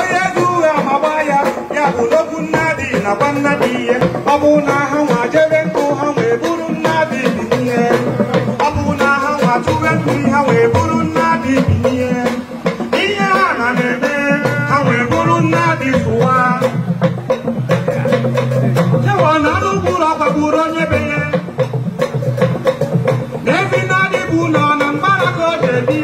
onye dị uwe amagba ya ya bụ n'okwu nna dị nakwa nna ihe ọ bụ na ha nwa jebe nkụ ha wee bụrụ nna dị bi ọ bụ na ha nwa tụwe nkụ ha wee bụrụ nna dị bi ihe a ha na na-eme ha wee bụrụ nna tụwa jewa na anụ ụkpụrụ onye be ya na ebi na nọ na mgbara ka o jebi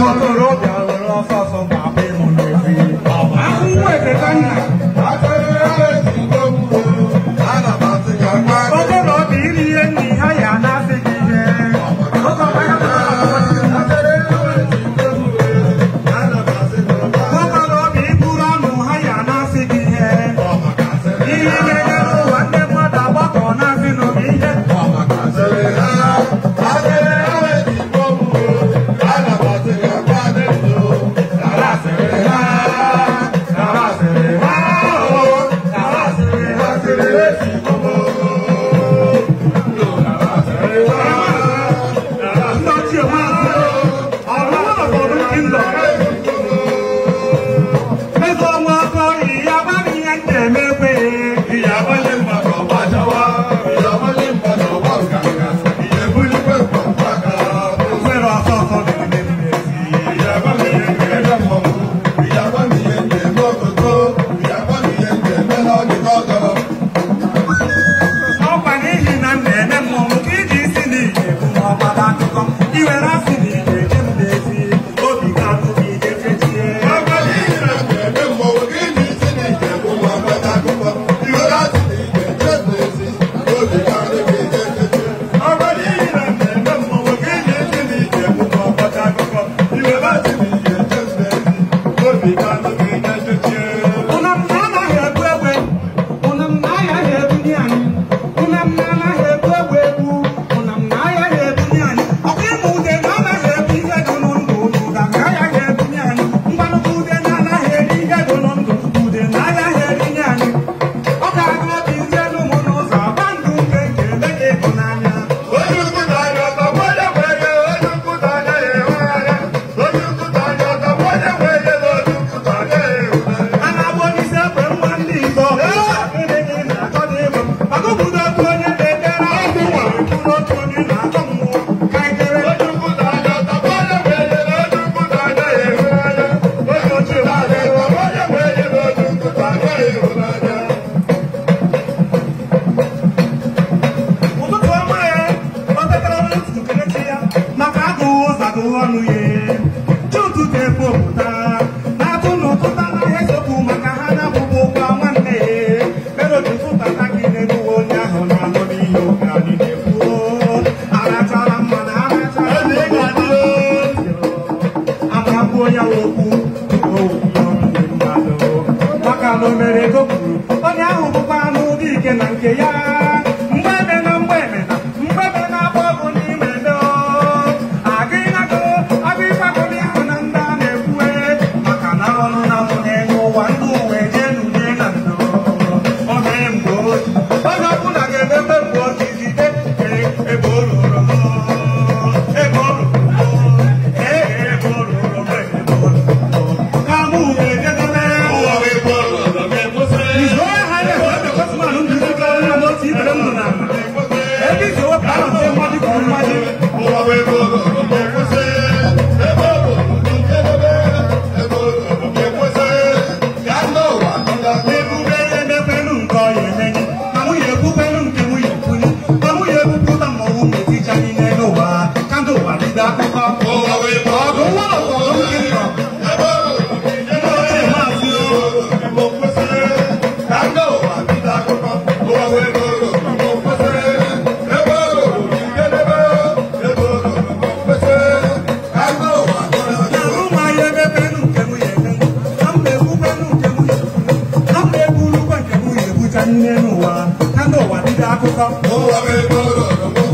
Motorola lọ fọfọ pàbí mo lè fi. fi kí yẹ. Ọkọ̀ báyà bá wà lọ́wọ́. Akẹ́rẹ́ ti gbogbo alàbà ti gbàgbá. Ọkọ̀ lọ bí Búrọ́nù àyà náà fi kí yẹ. Iye gẹ́gẹ́ ló wà ní 무대 Oh, I'm in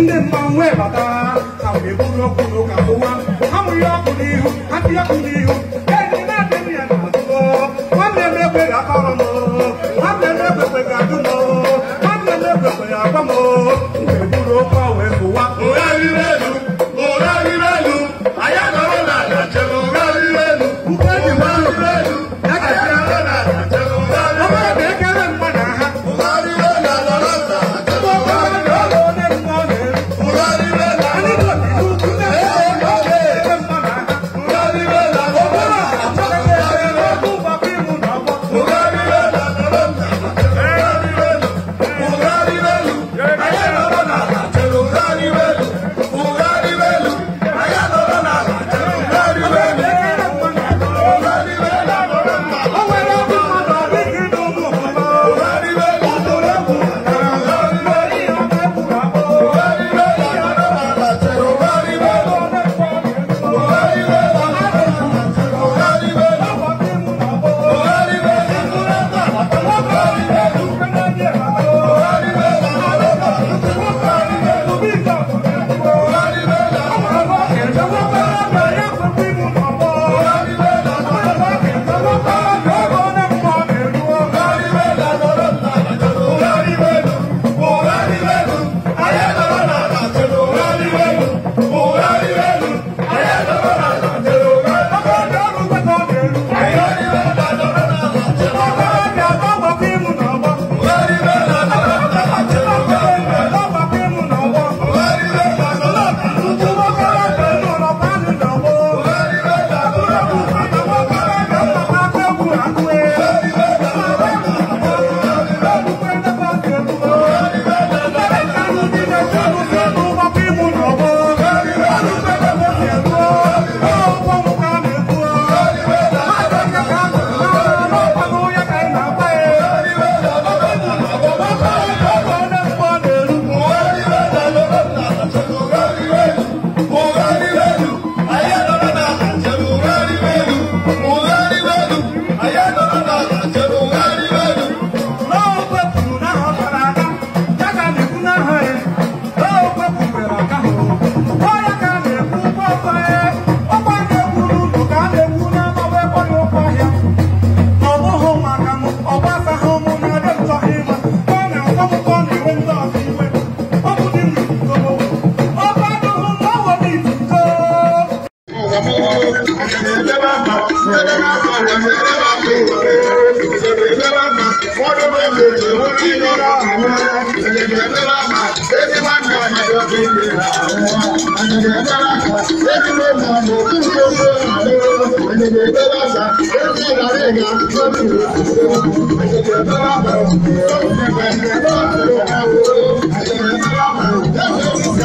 你天忙外吧哒。ẹ̀jẹ̀ dáráka lẹ́kùnrin mọ̀ lókùn gbogbo àlọ́ ẹ̀jẹ̀ dáráka lẹ́kùnrin ìdárẹ̀ ga lọ́kùn ẹ̀jẹ̀ dáráka lọ́kùn ẹ̀jẹ̀ dáráka lọ́kùn ẹ̀jẹ̀ dáráka lọ́kùn ẹ̀jẹ̀ dáráka lọ́kùn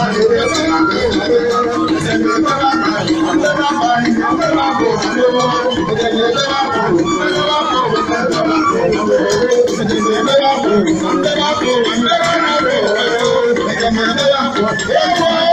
ẹ̀jẹ̀ dáráka lọ́kùn ẹ̀jẹ̀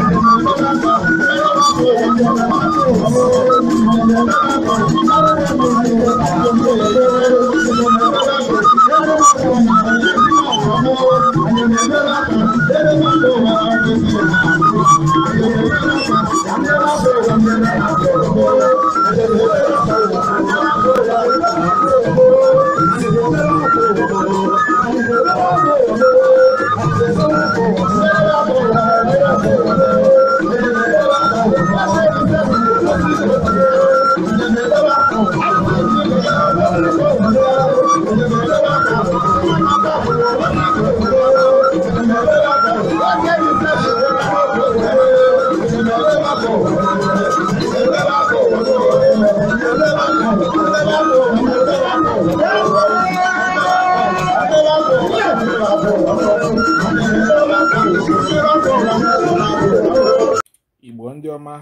igbo ndị ọma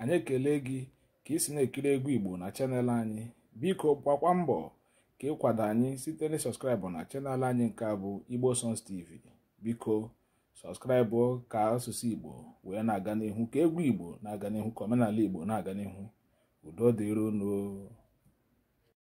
anyị ekele gị ka isi na-ekiri egwu igbo na chanel anyị biko gbakwa mbọ ka ịkwado anyị site na sọskraịbụ na chanel anyị nke a bụ igbo songs tv biko sọskraịbụ ka asụsụ igbo wee na-aga n'ihu ka egwu igbo na-aga n'ihu ka omenala igbo na-aga n'ihu udo